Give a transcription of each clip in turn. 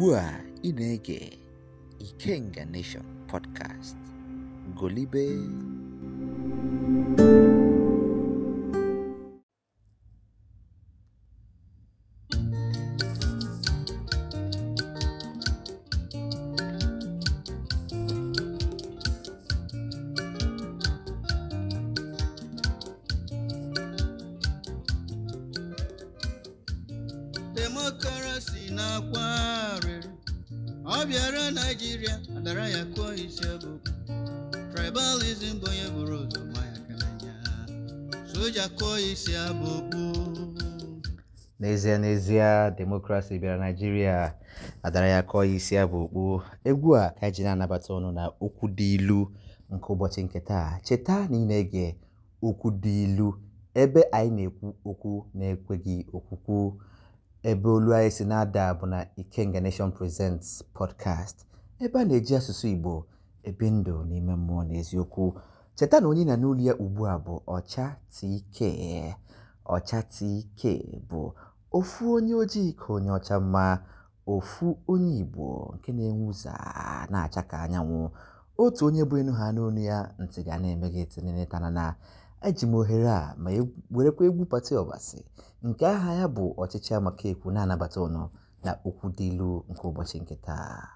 ugbu a ị na-ege Ikenga Nation podcast golibe demokrasi bịara naijiria adara ya akọ isi ya bụ okpu egwu a ka e ji na-anabata ọnụ na okwu dị ilu nke ụbọchị nketa taa cheta na ị na-ege okwu dị ilu ebe anyị na-ekwu okwu na-ekweghị okwukwu ebe olu anyị si na-ada bụ na Ikenga Nation Presents podcast ebe a na-eji asụsụ Igbo ebe ndụ n'ime mmụọ na cheta na onye na n'ụlọ ya ugbu a bụ Ọcha Tike. Ọcha Tike bụ ofu onye ojii ka onye ọcha mma, ofu onye Igbo nke na enwe zaa na-acha ka anyanwụ, otu onye bụ enu ha n'onu ya ntị ga na-eme gị na Eji m ohere a ma e werekwa egwu pati Ọbasi nke aha ya bụ "Ọchịchị ekwu na-anabata ụnụ" na okwu dị ilu nke ụbọchị nke taa.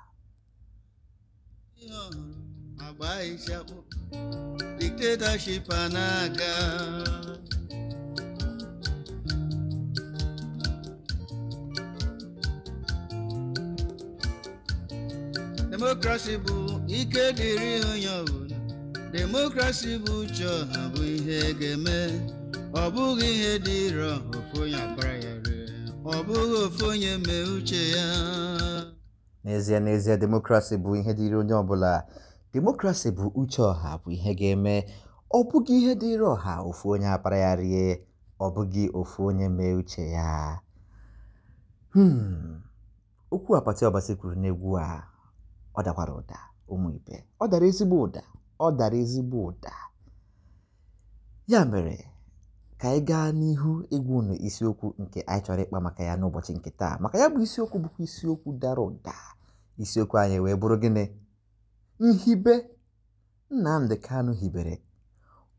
demokrasi bụ ike dịrị onye ọbụla demokrasi bụ uche ọha bụ ihe ga-eme ọ bụghị ihe dịrọ ofu onye akpara ya ọ bụghị ofu onye mee uche ya n'ezie n'ezie demokrasi bụ ihe dịrị onye ọbụla demokrasi bụ uche ọha bụ ihe ga-eme ọ bụghị ihe dịrị ọha ofu onye akpara ya rie ọ bụghị ofu onye mee uche ya hmm. okwu apati ọbasi kwuru n'egwu a ọ dakwara ụda ụmụ ibe ọ dara ezigbo ụda ọ dara ezigbo ụda ya mere ka anyị gaa n'ihu egwu unu isiokwu nke anyị chọrọ ịkpa maka ya n'ụbọchị nke taa maka ya bụ isiokwu bụkwa isiokwu dara ụda isiokwu anyị wee bụrụ gịnị nhibe Nnamdi Kanu hibere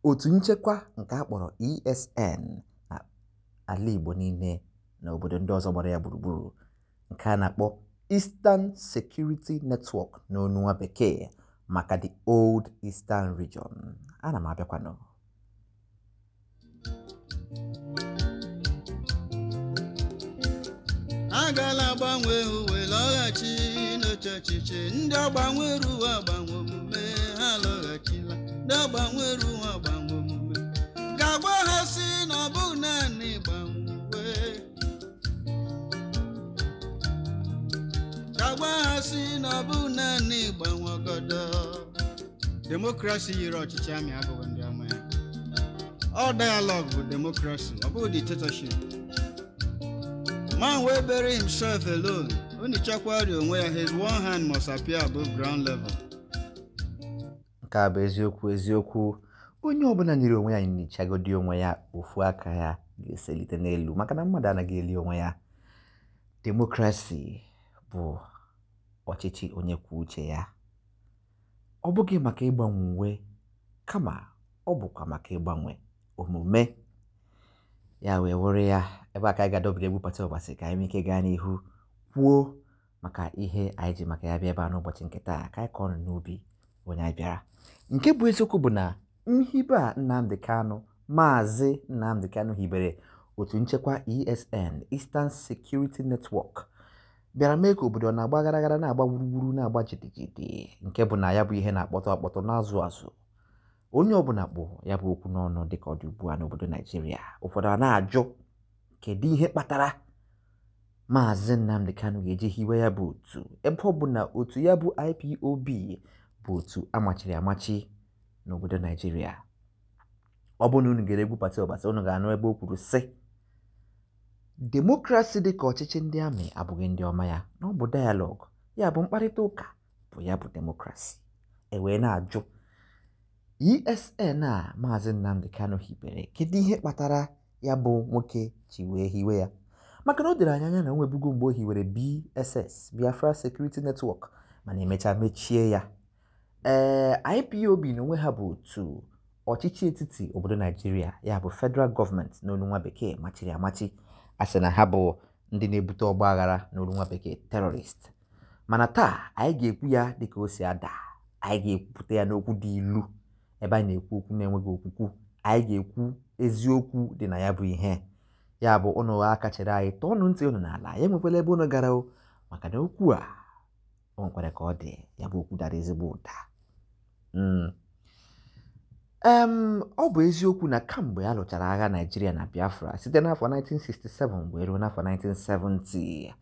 otu nchekwa nke a kpọrọ ESN na ala Igbo niile na obodo ndị ọzọ gbara ya gburugburu nke a na-akpọ Eastern Security Network n'ọnụnwa Bekee maka The Old Eastern Region. Ana m abịakwanụ. agala agbanwe uwe lọghachi n'oche ọchịchị ndị agbanwere uwe agbanwe omume ha lọghachila ndị agbanwere uwe agbanwe omume ga-agwa ha si na ọ bụghị naanị ịgbanwe agba si na ọ bụ naanị gbanwegodo demokrasi yiri ọchịchị amị abụghị ndị ọma ya ọ dialogue bụ demokrasi ọ bụghị dictatorship man wee bury himself alone onye chọkwari onwe ya his one hand must appear above ground level nke a bụ eziokwu eziokwu onye ọbụla nyere onwe ya nyichagodi onwe ya ofu aka ya ga-eselite n'elu maka na mmadụ anaghị eli onwe ya demokrasi bụ ọchịchị onye kwuo uche ya ọ bụghị maka ịgbanwe uwe kama ọ bụkwa maka ịgbanwe omume ya wee were ya ebe aka anyị ga-adọbiri egwu pati ọbasi ka anyị ike gaa n'ihu kwuo maka ihe anyị ji maka ya bịa ebe a n'ụbọchị nketa a ka anyị kọrọ n'ubi onye anyị bịara nke bụ eziokwu bụ na nhibe a Nnamdi Kanu maazị nnamdị Kanu hibere otu nchekwa ESN Eastern Security Network bịara mee ka obodo na-agba na-agba gburugburu na-agba jidigidi nke bụ na ya bụ ihe na-akpọtọ akpọtọ na-azụ azụ onye ọbụla kpụ ya bụ okwu n'ọnụ dịka ọ dị ugbu a n'obodo naijiria ụfọdụ a na-ajụ kedu ihe kpatara maazị nnamdị kanụ ga-eji hiwe ya bụ otu ebe ọ bụ na otu ya bụ ipob bụ otu amachiri amachi n'obodo naijiria ọ bụ na unu gere egwu pati ọbasa unu ga-anụ ebe o kwuru sị Demokrasi dị ka ọchịchị ndị amị abụghị ndị ọma ya na ọ bụ dayalọgụ yabụ mkparịta ụka bụ ya bụ demokrasi. E wee na-ajụ ESN a Maazị Nnamdi Kano hibere kedu ihe kpatara ya bụ nwoke ji wee hiwe ya maka na o dere anya anya na onwebugo mgbe o hiwere BSS Biafra sekuriti netwọk mana emechaa mechie ya ee IPOB na onwe ha bụ otu ọchịchị etiti obodo Naijiria ya bụ federal gọọmenti na nwa bekee machiri amachi asị na ha bụ ndị na-ebute ọgba aghara n'olu nwa bekee terọrist mana taa anyị ga-ekwu ya dịka o si ada anyị ga-ekwupụta ya n'okwu dị ilu ebe anyị na-ekwu okwu na-enweghị okwukwu anyị ga-ekwu eziokwu dị na ya bụ ihe ya bụ ụnụ aka chere anyị tọọnụ ntị ụnụ n'ala ya nwekwala ebe ụnụ gara maka na okwu a o nwekwara ka ọ dị ya bụ okwu dara ezigbo ụda hmm. ọ bụ eziokwu na kamgbe a lụchara agha naijiria na Biafra site n'afọ 1967 wee ruo n'afọ 1970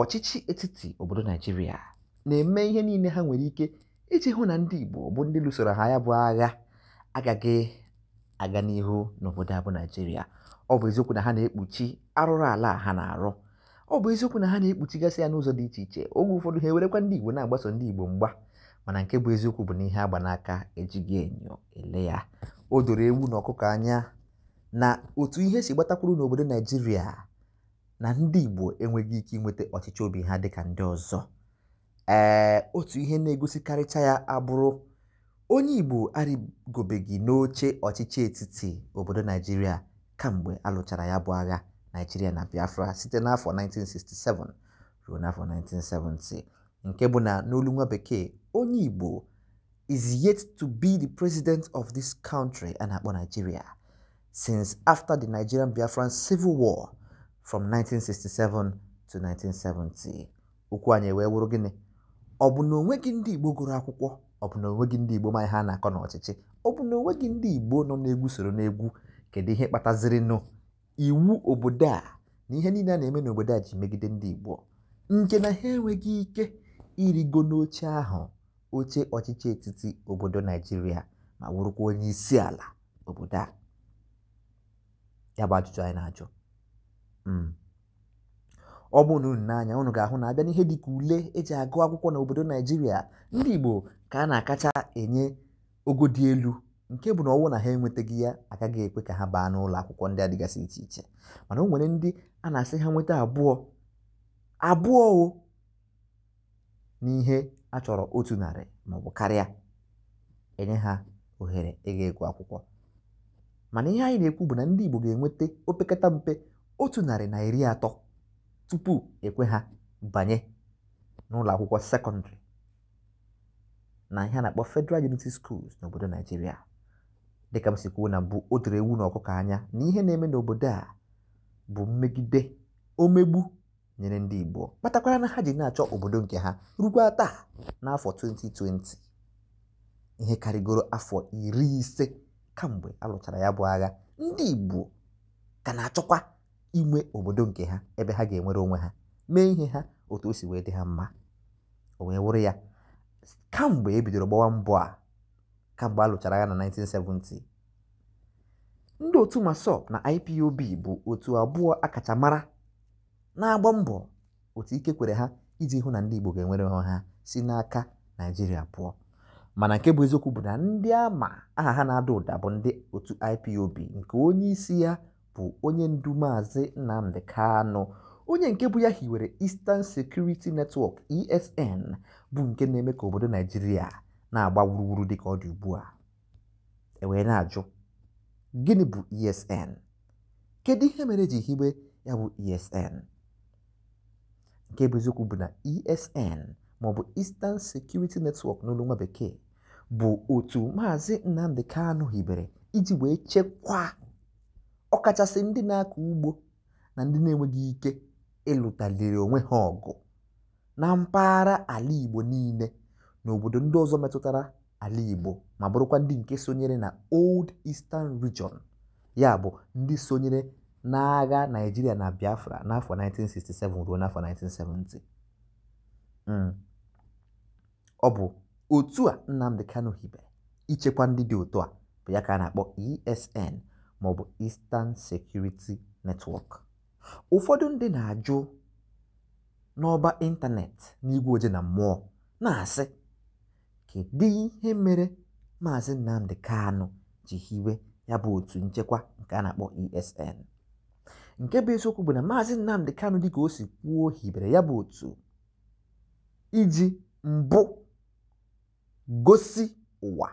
ọchịchị etiti obodo naijiria na-eme ihe niile ha nwere ike iji hụ na ndị Igbo bụ ndị lụsoro ha ya bụ agha agaghị aga n'ihu n'obodo abụ naijiria ọ bụ eziokwu na ha na-ekpuchi arụrụ ala ha na-arụ ọ bụ eziokwu na ha na-ekpuchigasị ya n'ụzọ dị iche iche oge ụfọdụ ha ewerekwa ndị Igbo na-agbaso ndị Igbo mgba mana nke bụ eziokwu bụ na ihe agba n'aka ejighị enyo ele ya o doro ewu na ọkụkọ anya na otu ihe si gbatakwuru n'obodo naijiria na ndị igbo enweghị ike inweta ọchịchị obi ha dịka ndị ọzọ ee otu ihe na-egosikarịcha ya abụrụ onye igbo arịgobeghị n'oche ọchịchị etiti obodo naijiria kamgbe alụchara ya bụ agha naijiria na biafra site n'afọ 1967 ruo n'afọ 1970 nke bụ na n'olu nwa bekee onye Igbo is yet to be the president of this country a na-akpọ Nigeria since after the Nigerian Biafran Civil War from 1967 to 1970 okwu anyị wee wụrụ gịnị ọ bụ na onweghị ndị Igbo gụrụ akwụkwọ ọ bụ na onweghị ndị Igbo maghị ha na-akọ n'ọchịchị ọ bụ na onweghị ndị Igbo nọ n'egwu soro n'egwu kedu ihe kpatazirinụ iwu obodo a na ihe niile a na-eme n'obodo a ji megide ndị Igbo nke na ha enweghị ike irigo n'oche ahụ oche ọchịchị etiti obodo Naijiria ma wụrụkwa onye isi ala obodo a ya bụ ajụjụ anyị na-ajụ hmm. ọ bụrụ na unu n'anya unu ga-ahụ na abịa n'ihe dịka ule eji agụ akwụkwọ n'obodo Naijiria ndị Igbo ka a na-akacha enye ogo dị elu nke bụ na ọnwụ na ha enwetaghị ya agaghị ekwe ka ha baa n'ụlọ akwụkwọ ndị adịgasị iche iche mana o nwere ndị a na-asị ha nweta abụọ abụọ o n'ihe a chọrọ otu narị maọbụ karịa enye ha ohere ịga ịgụ akwụkwọ mana ihe anyị na-ekwu bụ na ndị Igbo ga-enweta opekata mpe otu narị na iri atọ tupu ekwe ha banye n'ụlọ akwụkwọ sekọndịrị na ihe a na-akpọ Federal Unity Schools n'obodo Naijiria dịka m si kwuo na mbụ o ewu na ọkụkọ anya na ihe na-eme n'obodo a bụ mmegide omegbu nyere ndị Igbo kpatakwara na ha ji na-achọ obodo nke ha rugwa taa n'afọ 2020 ihe karịgoro afọ iri ise kamgbe alụchara ya bụ agha ndị Igbo ka na-achọkwa inwe obodo nke ha ebe ha ga-enwere onwe ha mee ihe ha otu o si wee dị ha mma o wee ya kamgbe e bidoro gbawa mbọ a kamgbe alụchara ya na 1970 ndị otu masop na IPOB bụ otu abụọ akacha mara na-agba mbọ otu ike kwere ha iji hụ na ndị Igbo ga-enwere onwe ha si n'aka Naịjirịa pụọ mana nke bụ eziokwu bụ na ndị ama aha ha na-ada ụda bụ ndị otu IPOB nke onye isi ya bụ onye ndu maazị Nnamdi kano onye nke bụ ya hiwere Eastern Security Network ESN bụ nke na-eme ka obodo Naijiria na-agba wuruwuru dị ọ dị ugbu a ewee na gịnị bụ ESN kedu ihe mere e ji hiwe ya bụ ESN nke e bụ eziokwu bụ na ESN maọbụ Eastern Security Network n'ụlọ nwa bekee bụ otu maazị Nnamdi Kanu hibere iji wee chekwaa ọkachasị ndị na-akọ ugbo na ndị na-enweghị ike ịlụtaliri onwe ha ọgụ na mpaghara ala Igbo niile na obodo ndị ọzọ metụtara ala Igbo ma bụrụkwa ndị nke sonyere na Old Eastern Region ya bụ ndị sonyere n'agha nigeria na Biafra n'afọ 1967 ruo n'afọ 1970 hmm. ọ bụ otu a Nnamdi Kanu hibere ichekwa ndị dị otu a bụ ya ka a na-akpọ ESN maọbụ Eastern Security Network ụfọdụ ndị na-ajụ n'ọba ịntanetị n'igwe oje na mmụọ na-asị kedu ihe mere maazị Nnamdi Kanu ji hiwe ya bụ otu nchekwa nke a na-akpọ ESN nke bụ isiokwu bụ na maazị nnamdị kanụ dịka o si kwuo hibere ya bụ otu iji mbụ gosi ụwa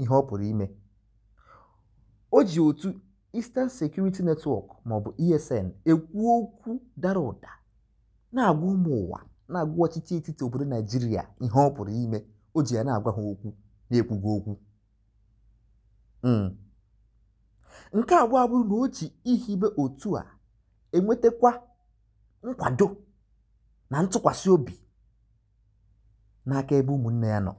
ihe ọ pụrụ ime o ji otu Eastern Security Network maọbụ ESN ekwu okwu dara ụda na-agwa ụmụ ụwa na-agwa ọchịchị etiti obodo Naịjirịa ihe ọ pụrụ ime o ji ya na-agwa ha okwu na ekwugo okwu hmm. nke abụọ bụrụ na o ji ihibe otu a enwetakwa nkwado na ntụkwasị obi n'aka ebe ụmụnne ya nọ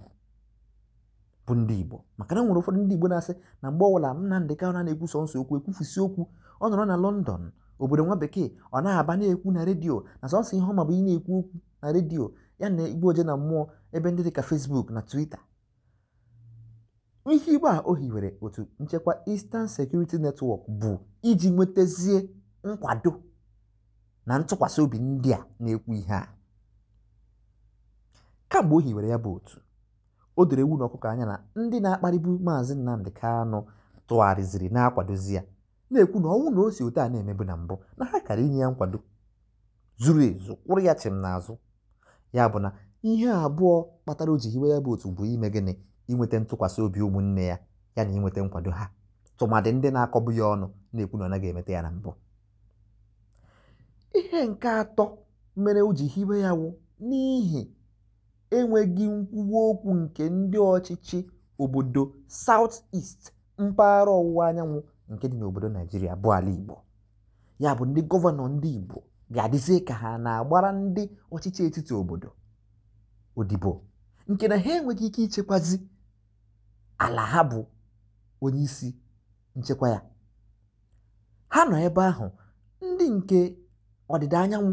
bụ ndị Igbo maka na e nwere ụfọdụ ndị Igbo na-asị na mgbe ọbụla Nnamdị Kanu na ekwu nsọ okwu ekwufusi okwu ọ nọrọ na lọndọn obodo nwa bekee ọ na-aba na-ekwu na redio na sọsọ ihe ọ ma bụ ị na-ekwu okwu na redio ya na Igbo oje na mmụọ ebe ndị dị ka fesbuk na Twitter ihe igbe a o hiwere otu nchekwa Eastern Security Network bụ iji nwetazie nkwado na ntụkwasị obi ndị a na-ekwu ihe a kamgbe o hiwere ya bụ otu o dere ewu na ọkụkọ anya na ndị na-akparịbu maazị nnamdị kanụ tụgharịziri na-akwadozi ya na-ekwu na ọnwụ na o si otu a na-emebu na mbụ na ha kara inye ya nkwado zuru ezu kwụrụ ya chịm n'azụ ya bụ na ihe abụọ kpatara o ji hiwe ya bụ otu bụ ime gịnị inweta ntụkwasị obi ụmụnne ya ya na inweta nkwado ha tụmadị ndị na-akọbụ ya ọnụ na-ekwu na ọ naghị emeta ya na mbụ ihe nke atọ mere o ji hibe ya wụ n'ihi enweghị nkwuwa okwu nke ndị ọchịchị obodo South East mpaghara ọwụwa anyanwụ nke dị n'obodo Naijiria bụ ala Igbo ya bụ ndị gọvanọ ndị Igbo ga-adịzie ka ha na-agbara ndị ọchịchị etiti obodo odibo nke na ha enweghị ike ichekwazi ala ha bụ onye isi nchekwa ya ha nọ ebe ahụ ndị nke ọdịda anyanwụ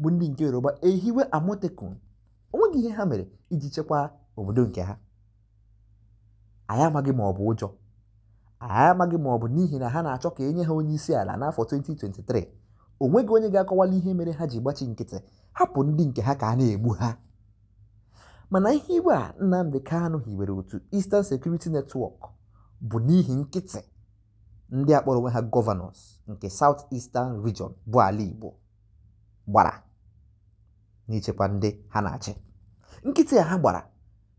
bụ ndị nke yoruba ehiwe amotekun onweghị ihe ha mere iji chekwaa obodo nke ha anyị amaghị ma ọ bụ ụjọ anyị amaghị ma ọ bụ n'ihi na ha na-achọ ka enye ha onye isi ala n'afọ 2023 o onye ga-akọwala ihe mere ha ji gbachi nkịtị hapụ ndị nke ha ka a na-egbu ha mana ihe igwe a Nnamdi Kanu hiwere otu Eastern Security Network bụ n'ihi nkịtị ndị akpọrọ onwe ha gọvanọs nke South Eastern Region bụ ala Igbo gbara n'ichekwa ndị ha na-achị nkịtị a ha gbara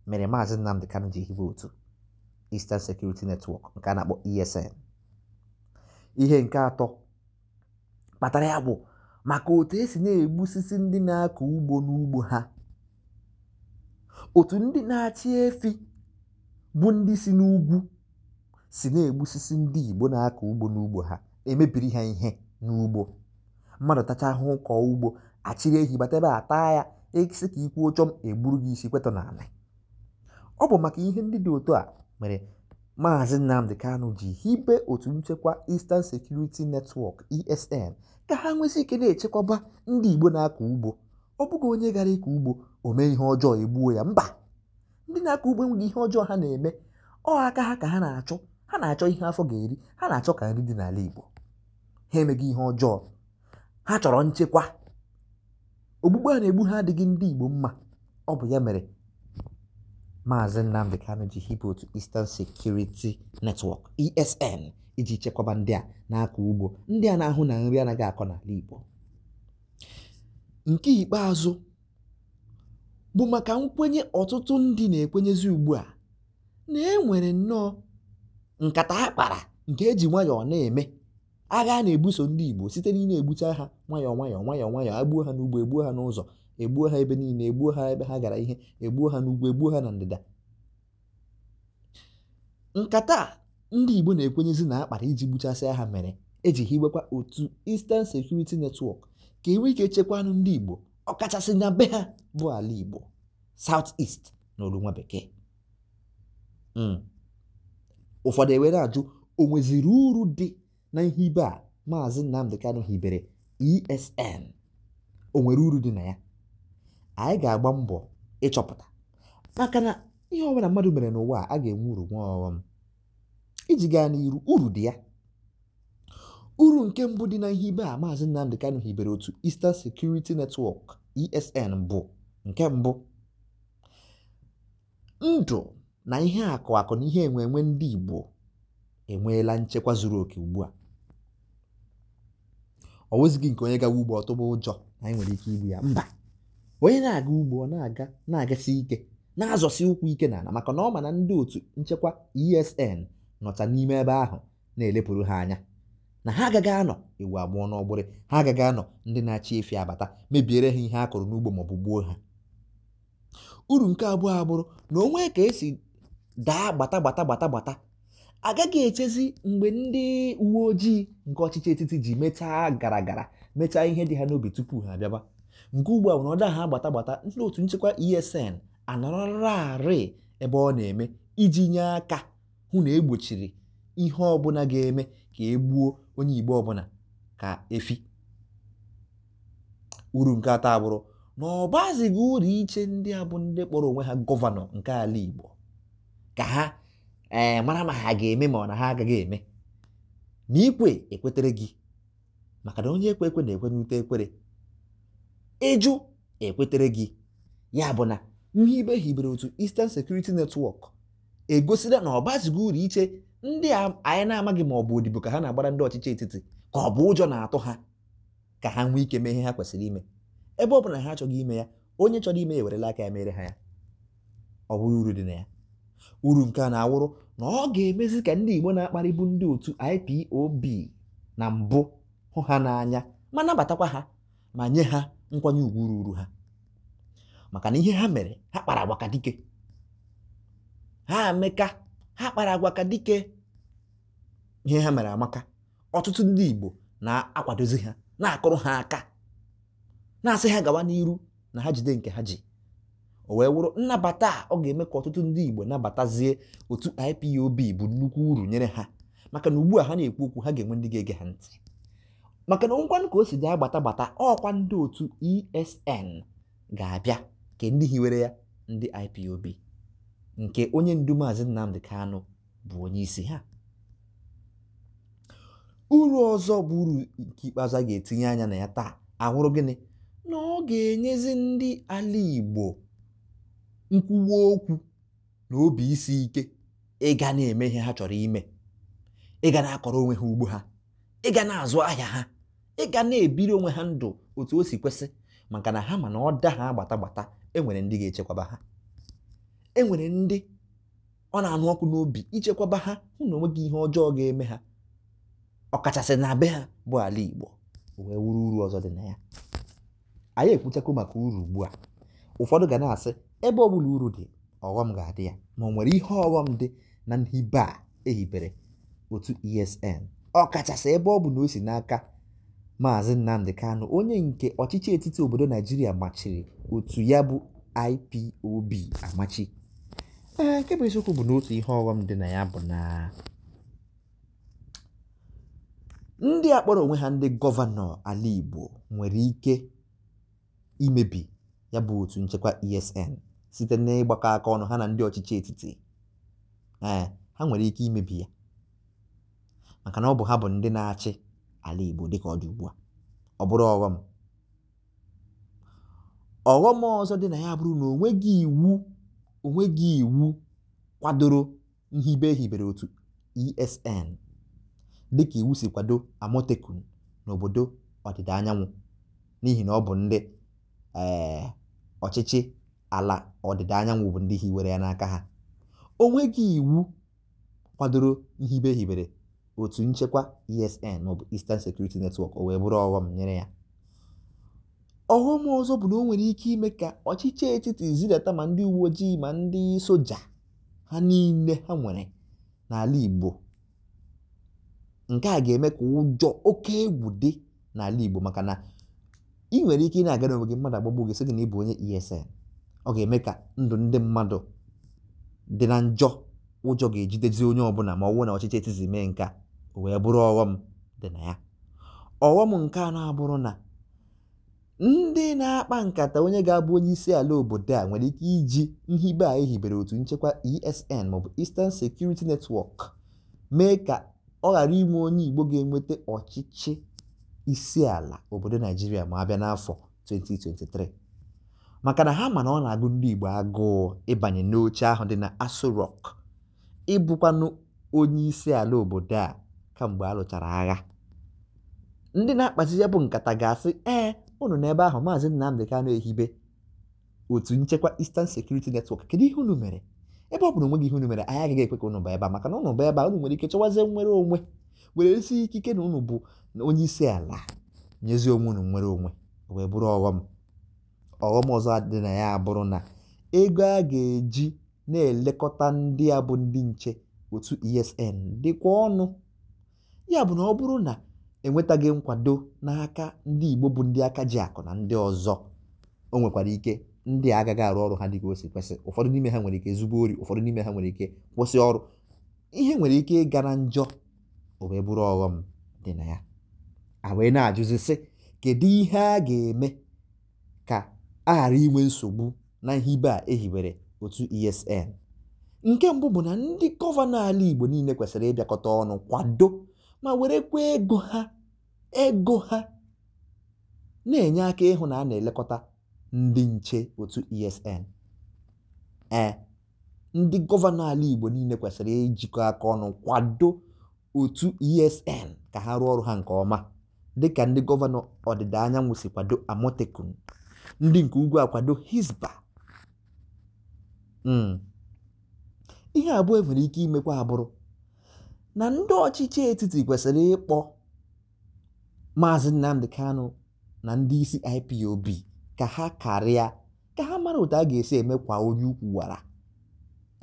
mere maazị Nnamdi Kanu ji hiwe otu Eastern Security Network nke a na ESN ihe nke atọ kpatara ya bụ maka otu esi na-egbusisi ndị na-akọ ugbo n'ugbo ha otu ndị na-achị efi bụ ndị si n'ugwu si na-egbusisi ndị Igbo na-akọ ugbo n'ugbo ha emebiri ha ihe n'ugbo mmadụ tacha ahụ ụkọ ugbo achịrị ehi bata ebe a taa ya esi ka ikwuo chọm egburu gị isi kwetọ n'ala ọ bụ maka ihe ndị dị otu a mere Maazị Nnamdi Kanu ji hibe otu nchekwa Eastern Security Network ESN ka ha nwesị ike na-echekwaba ndị Igbo na-akọ ugbo ọ bụghị onye gara ịkọ ugbo o mee ihe ọjọọ egbuo ya mba ndị na-akọ ugbo enweghị ihe ọjọọ ha na-eme ọ aka ha ka ha na-achọ ha na-achọ ihe afọ ga-eri ha na-achọ ka nri dị n'ala Igbo ha emeghị ihe ọjọọ ha chọrọ nchekwa ogbugbu a na-egbu ha adịghị ndị Igbo mma ọ bụ ya mere Maazị Nnamdi Kanu ji hibe otu Eastern Security Network ESN iji chekwaba ndị a na-akọ ugbo ndị a na-ahụ na nri anaghị akọ n'ala Igbo nke ikpeazụ bụ maka nkwenye ọtụtụ ndị na-ekwenyezi ugbu a na e nwere nnọọ nkata akpara nke eji nwayọọ na-eme agha na-ebuso ndị Igbo site na ị egbucha ha nwayọọ nwayọọ nwayọọ nwayọọ agbuo ha n'ugbo egbuo ha n'ụzọ egbuo ha ebe niile egbuo ha ebe ha gara ihe egbuo ha n'ugbo egbuo ha na ndịda nkata ndị Igbo na-ekwenyezi na akpara iji gbuchasịa ha mere eji hiwekwa otu Eastern Security Network ka enwe ike chekwanụ ndị Igbo ọkachasị na be ha bụ ala Igbo South East na olunwa bekee mm. ụfọdụ ewere ajụ o nweziri uru dị na ihe ibe a maazị nnamdị Kanu hibere ESN o nwere uru dị na ya anyị ga-agba mbọ ịchọpụta maka na ihe ọbụla mmadụ mere n'ụwa a ga-enwe uru nwa ọghọm iji gaa n'iru uru dị ya uru nke mbụ dị na ihe ibe a maazị Nnamdi Kanu hibere otu Eastern Security Network ESN bụ nke mbụ ndụ na ihe akụ akụ na ihe enwe enwe ndị Igbo enweela nchekwa zuru oke ugbu a ọ wụzighị nke onye gawa ugbo ọtụba ụjọ na anyị nwere ike igbu ya mba onye na-aga ugbo na-aga na-agasi ike na-azọsi ụkwụ ike na maka na ọ ma na ndị otu nchekwa ESN nọcha n'ime ebe ahụ na-elepụrụ ha anya na ha agaghị anọ ewu abụọ n'ọgbụrị ha agaghị anọ ndị na-achị efi abata mebiere ha ihe a kụrụ n'ugbo maọbụ gbuo ha uru nke abụọ abụrụ na onwe ka esi daa gbata gbata gbata gbata agaghị echezi mgbe ndị uwe ojii nke ọchịchị etiti ji mechaa gara gara mechaa ihe dị ha n'obi tupu ha abịaba nke ugbu a nwere ọda ha gbata gbata ndị otu nchekwa ESN anọrọlarị ebe ọ na-eme iji nye aka hụ na egbochiri ihe ọbụla ga-eme ka e gbuo onye Igbo ọbụla ka efi uru nke atọ abụrụ na ọ bazighị uru iche ndị a bụ ndị kpọrọ onwe ha gọvanọ nke ala Igbo ka ha ee eh, mara ma ha ga-eme ma ọ na ha agaghị eme ma ikwe ekwetere gị maka na onye ekwe ekwe na-ekwe n'ute ekwere ịjụ ekwetere gị ya bụ na ihe ibe hibere otu Eastern Security Network egosila na ọ bazighị uru iche ndị anyị na-amaghị ma ọ bụ odibo ka ha na-agbara ndị ọchịchị etiti ka ọ bụ ụjọ na-atụ ha ka ha nwee ike mee ihe ha kwesịrị ime ebe ọ bụla ha achọghị ime ya onye chọrọ ime ya aka ya mere ha ya ọ bụrụ uru dị na ya uru nke a na-awụrụ na ọ ga-emezi ka ndị Igbo na-akparịbụ ndị otu IPOB na mbụ hụ ha n'anya ma nabatakwa ha ma nye ha nkwanye ugwu ruru ha maka na ihe ha mere ha kpara agbaka dike ha emeka ha kpara agwa ka dike ihe ha mere amaka ọtụtụ ndị Igbo na-akwadozi ha na-akụrụ ha aka na-asị ha gawa n'iru na ha jide nke ha ji o wee wụrụ nnabata a ọ ga-eme ka ọtụtụ ndị Igbo nabatazie otu IPOB bụ nnukwu uru nyere ha maka na ugbu a ha na-ekwu okwu ha ga-enwe ndị ga-ege ha ntị maka na ngwanụ ka o si dị agbata gbata ọkwa ndị otu ESN ga-abịa ka ndị hiwere ya ndị IPOB nke onye ndu maazị nnamdị Kanu bụ onye isi ha uru ọzọ bụ uru nke ikpeazụ a ga-etinye anya na ya taa ahụrụ gịnị na ọ ga-enyezi ndị ala Igbo nkwuwa okwu na obi isi ike ịga na-eme ihe ha chọrọ ime ịga na-akọrọ onwe ha ugbo ha ịga na-azụ ahịa ha ịga na-ebiri onwe ha ndụ otu o si kwesị maka na ha ma na ọ da ha gbata gbata enwere ndị ga-echekwaba ha enwere ndị ọ na-anụ ọkụ n'obi ichekwaba ha hụ na onweghị ihe ọjọọ ga-eme ha ọkachasị na be ha bụ ala Igbo wee wuru uru ọzọ dị na ya anyị ekwuchakwu maka uru ugbu a ụfọdụ ga na-asị ebe ọ bụla uru dị ọghọm ga-adị ya ma ọ nwere ihe ọghọm dị na nhibe a ehibere otu ESN ọkachasị ebe ọ bụ na o si n'aka maazị Nnamdi kanụ onye nke ọchịchị etiti obodo Naijiria machiri otu ya bụ IPOB amachi ee eh, nke bụ isiokwu bụ n'otu ihe ọghọm dị na ya bụ na ndị a kpọrọ onwe ha ndị gọvanọ ala Igbo nwere ike imebi ya bụ otu nchekwa ESN site n'ịgbakọ aka ọnụ ha na ndị ọchịchị etiti ee eh, ha nwere ike imebi ya maka na ọ bụ ha bụ ndị na-achị ala Igbo dịka ọ dị ugbu a ọ bụrụ ọghọm ọghọm ọzọ dị na ya bụrụ na o nweghị iwu o iwu kwadoro nhibe e hibere otu ESN dịka iwu si kwado Amotekun n'obodo ọdịda anyanwụ n'ihi na ọ bụ ndị eh, ọchịchị ala ọdịda anyanwụ bụ ndị hiwere ya n'aka ha onweghị iwu kwadoro nhibe ehibere otu nchekwa ESN maọbụ Eastern Security Network o wee bụrụ ọghọm nyere ya Ọghọm ọzọ bụ na o nwere ike ime ka ọchịchị etiti zidata ma ndị uwe ojii ma ndị soja ha niile ha nwere n'ala Igbo. Nke a ga-eme ka ụjọ oke egwu dị n'ala Igbo maka na ị nwere ike ị na aga onwe gị mmadụ agbagbu gị na ị bụ onye ESN. Ọ ga-eme ka ndụ ndị mmadụ dị na njọ ụjọ ga-ejidezi onye ọbụla ma ọ wụ na ọchịchị etiti mee nke a o wee bụrụ ọghọm dị na ya. Ọghọm nke na abụrụ na Ndị na-akpa nkata onye ga-abụ onye isi ala obodo a nwere ike iji nhibe a ehibere Otu Nchekwa ESN maọbụ Eastern Security Network mee ka ọ ghara inwe onye Igbo ga-enweta ọchịchị isi ala obodo Naịjirịa ma abịa bịa n'afọ 2023, maka na ha ma na ọ na-agụ ndị Igbo agụụ ịbanye n'oche ahụ dị na Aso ịbụkwanụ onye isi ala obodo a kamgbe a agha. Ndị na-akpazi ya bụ nkata ga-asị ee unu n'ebe ahụ maazị ka na ehibe otu nchekwa Eastern Security Network kedu ihe unu mere ebe ọ bụrụ onwe gị ihe unu mere anyị agaghị ekwe ka ụnụ baa ebe a maka na ụnụ baa ebe a unu nwere ike chọwazie nwere onwe were si ikike na ụnụ bụ onye isi ala nyezie onwe unu nwere onwe wee bụrụ ọghọm ọghọm ọzọ dị na ya abụrụ na ego a ga-eji na-elekọta ndị a bụ ndị nche otu ESN dịkwa ọnụ ya bụ na ọ bụrụ na enwetaghị nkwado n'aka ndị Igbo bụ ndị aka ji akụ na ndị ọzọ o nwekwara ike ndị agaghị arụ ọrụ ha dịka o si kwesị ụfọdụ n'ime ha nwere ike zube ori ụfọdụ n'ime ha nwere ike kwụsị ọrụ ihe nwere ike ịga na njọ o wee bụrụ ọghọm dị na ya a wee na-ajụzi sị kedu ihe a ga-eme ka a ghara inwe nsogbu na nhibe a ehiwere otu ESN nke mbụ bụ na ndị gọvanọ ala Igbo niile kwesịrị ịbịakọta ọnụ kwado ma wèrekwa ego ha ego ha na enye aka ịhụ na a na-elekọta ndị nche otu ESN ee ndị gọvanọ ala igbo niile kwesịrị ijikọ aka ọnụ kwado otu ESN ka ha rụọ ọrụ ha nke ọma dịka ndị gọvanọ ọdịda anyanwụ si kwado amotekun ndị nke ugwu akwado Hizbà hmm. ihe abụọ e ike imekwa abụrụ. na ndị ọchịchị etiti kwesịrị ịkpọ maazị Nnamdi Kanu na ndị isi IPOB ka ha karịa ka ha mara otu a ga-esi eme kwa onye ukwuwara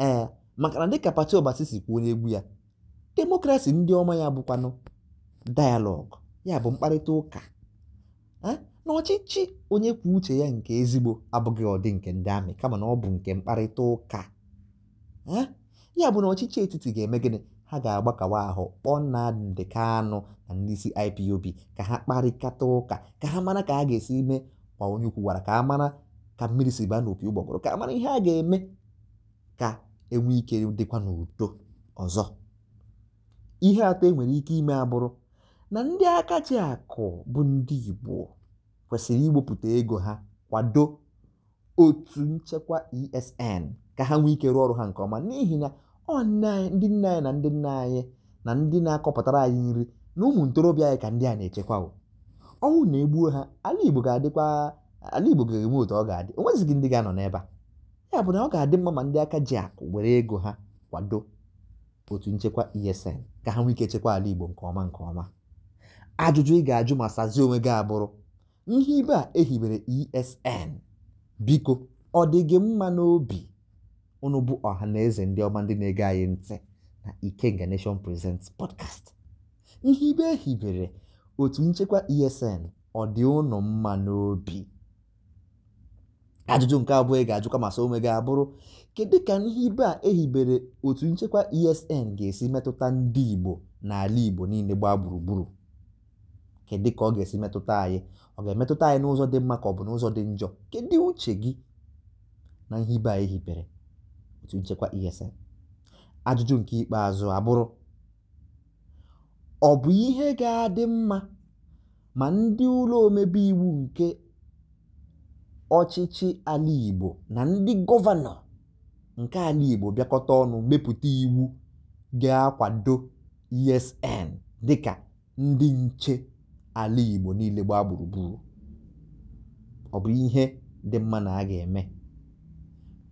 ee maka na dịka pati ọbasi si kwuo n'egwu ya demokrasi ndị ọma ya bụkwanụ dialog ya bụ mkparịta ụka na ọchịchị onye kwuo uche ya nke ezigbo abụghị ọdị nke ndị amị kama na ọ bụ nke mkparịta ụka ya bụ na ọchịchị etiti ga-eme gịnị ha ga agbakọwa ahụ kpọọ Nnamdi Kanu na ndị isi IPOB ka ha kparịkata ụka ka ha mara ka a ga-esi me kwa onye ukwu gwara ka a mara ka mmiri si baa n'opi ụgbọgụrụ ka a mara ihe a ga-eme ka enwe ike dịkwa n'udo ọzọ ihe atọ e nwere ike ime abụrụ na ndị aka ji akụ bụ ndị Igbo kwesịrị iwepụta ego ha kwado otu nchekwa ESN ka ha nwee ike rụọ ọrụ ha nke ọma n'ihi na ọ ndị nne anyị na ndị nna anyị na ndị na-akọpụtara anyị nri na ụmụ ntorobịa anyị ka ndị a na-echekwa ọnwụ na egbuo ha ala Igbo ga-adịkwa ala Igbo ga-enwe otu ọ ga-adị o nwezighị ndị ga-anọ n'ebe a ya bụ na ọ ga-adị mma ma ndị aka ji akụ were ego ha kwado otu nchekwa ESN ka ha nwee ike chekwa ala Igbo nke ọma nke ọma ajụjụ ị ga-ajụ ma sazie onwe gị abụrụ ihe ibe a ehibere ESN biko ọ dị gị mma n'obi unu bụ ọha na eze ndị ọma ndị na-ege anyị ntị na Ikenga Nation present podcast ibe ehibere otu nchekwa ESN ọ dị ụnụ mma n'obi ajụjụ nke abụọ ị ga-ajụkwa ma so onwe gị abụrụ kedu ka nhibe a ehibere otu nchekwa ESN ga-esi metụta ndị Igbo n'ala Igbo niile gbaa gburugburu kedu ka ọ ga-esi metụta anyị ọ ga-emetụta anyị n'ụzọ dị mma ka ọ bụ n'ụzọ dị njọ kedu uche gị na nhibe a ehibere otu nchekwa ESN ajụjụ nke ikpeazụ abụrụ ọ bụ ihe ga-adị mma ma ndị ụlọ omebe iwu nke ọchịchị ala Igbo na ndị gọvanọ nke ala Igbo bịakọta ọnụ mepụta iwu ga-akwado ESN dịka ndị nche ala Igbo niile gbaa gburugburu ọ bụ ihe dị mma na a ga-eme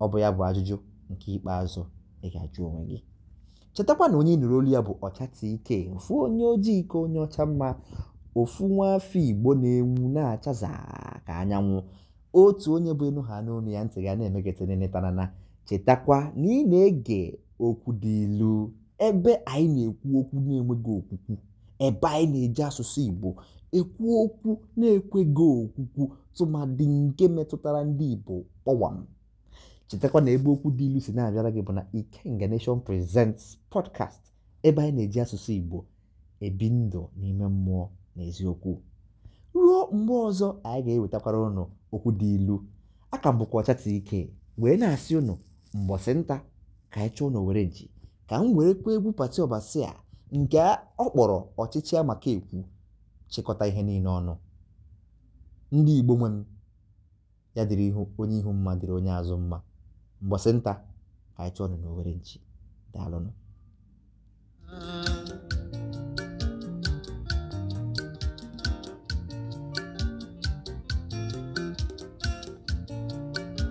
ọ bụ ya bụ ajụjụ nke ikpeazụ ị ga-ajụ onwe gị chetakwa na onye nụrụ olu ya bụ ọcha ike ofu onye ojii ka onye ọcha mma ofu nwa afọ igbo na-enwu na-achaza ka anyanwụ otu onye bụ enu ha n'onu ya ntị ga na na. chetakwa na ị na-ege okwu dị ilu ebe anyị na-ekwu okwu na-enweghị okwukwu ebe anyị na-eji asụsụ igbo ekwu okwu na-ekweghị okwukwu tụmadị nke metụtara ndị igbo kpọwam chetakwa na ebe okwu dị ilu si na-abịara gị bụ na Ikenga Nation Presents podcast ebe anyị na-eji asụsụ Igbo ebi ndụ n'ime mmụọ na eziokwu ruo mgbe ọzọ anyị ga-ewetakwara ụnụ okwu dị ilu aka mbụkwa ọchata ike wee na-asị ụnụ mbọsị nta ka anyị chọọ were ji ka m were kwuo egwu pati ọbasi a nke ọ kpọrọ ọchịchị maka ekwu chịkọta ihe niile ọnụ ndị Igbo nwe m ya dịrị ihu onye ihu mma dịrị onye azụ mma mgbasịnta ka anyị chọọ ọnụ n'owere nchi daalụnụ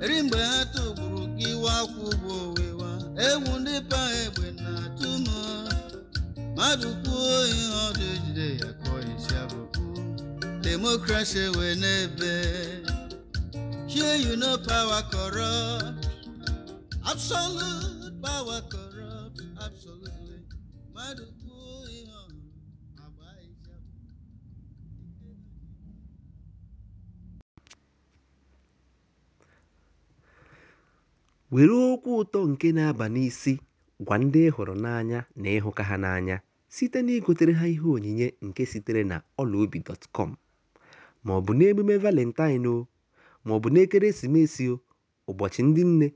eri mgbe ha tụgburu gị iwe akwụ bụ owewa ewu ndị pa egbe na-atụ mmadụ kwuo oyi ọdụ ejide ya kpọọ isi abụkwu demokrasi wee n'ebe shie you no power kọrọ. Absolute power corrupt absolutely. Were okwu ụtọ nke na-aba n'isi gwa ndị ị hụrụ n'anya na ịhụka ha n'anya site na igotere ha ihe onyinye nke sitere na ọlaobi.com ma ọ n'emume Valentine o ma ọ bụ n'ekeresimesi o ụbọchị ndị nne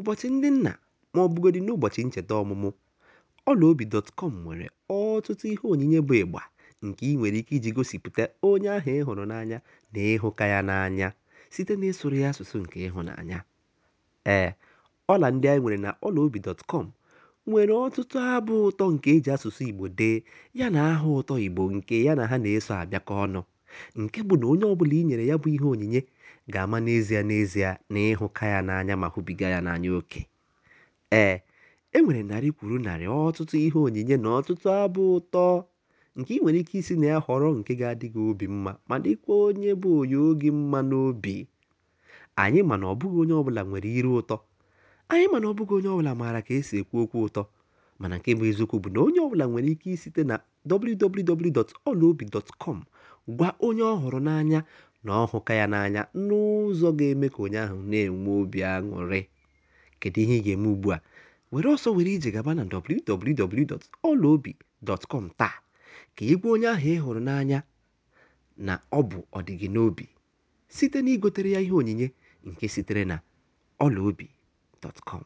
Ụbọchị Ndị Nna ma ọ bụgodị n'ụbọchị ncheta ọmụmụ, ọlaobi.com nwere ọtụtụ ihe onyinye bụ ịgba nke ị nwere ike iji gosipụta onye ahụ ị hụrụ n'anya na ịhụka ya n'anya site n'ịsụrụ ya asụsụ nke ịhụnanya. Ee, ọla ndị anyị nwere na ọlaobi.com nwere ọtụtụ abụ ụtọ nke eji asụsụ Igbo dee yana aha ụtọ Igbo nke ya na ha na-eso abịakọ ọnụ, nke bụ na onye ọbụla i nyere ya bụ ihe onyinye ga-ama n'ezie n'ezie na ịhụka ya n'anya ma hụbiga ya n'anya oke ee e nwere narị kwuru narị ọtụtụ ihe onyinye na ọtụtụ abụ ụtọ nke ị nwere ike isi na ya họrọ nke ga-adị gị obi mma ma dịkwa onye bụ onye oge mma n'obi anyị mana ọbụghị onye ọbụla nwere iru ụtọ anyị mana ọbụghị onye ọbụla maara ka esi ekwu okwu ụtọ mana nke bụ eziokwu bụ na onye ọbụla nwere ike isite na www.olaobi.com gwa onye ọ hụrụ n'anya na ọ ya n'anya n'ụzọ ga-eme ka onye ahụ na-enwe obi aṅụrị kedu ihe ị ga-eme ugbu a were ọsọ were ije gaba na www.ọlaobi.com taa ka ị onye ahụ ị hụrụ n'anya na ọ bụ ọdịgị n'obi site na igotere ya ihe onyinye nke sitere na ọlaobi.com